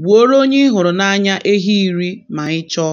Gbuoro onye ị hụrụ n'anya ehi iri ma ị chọọ.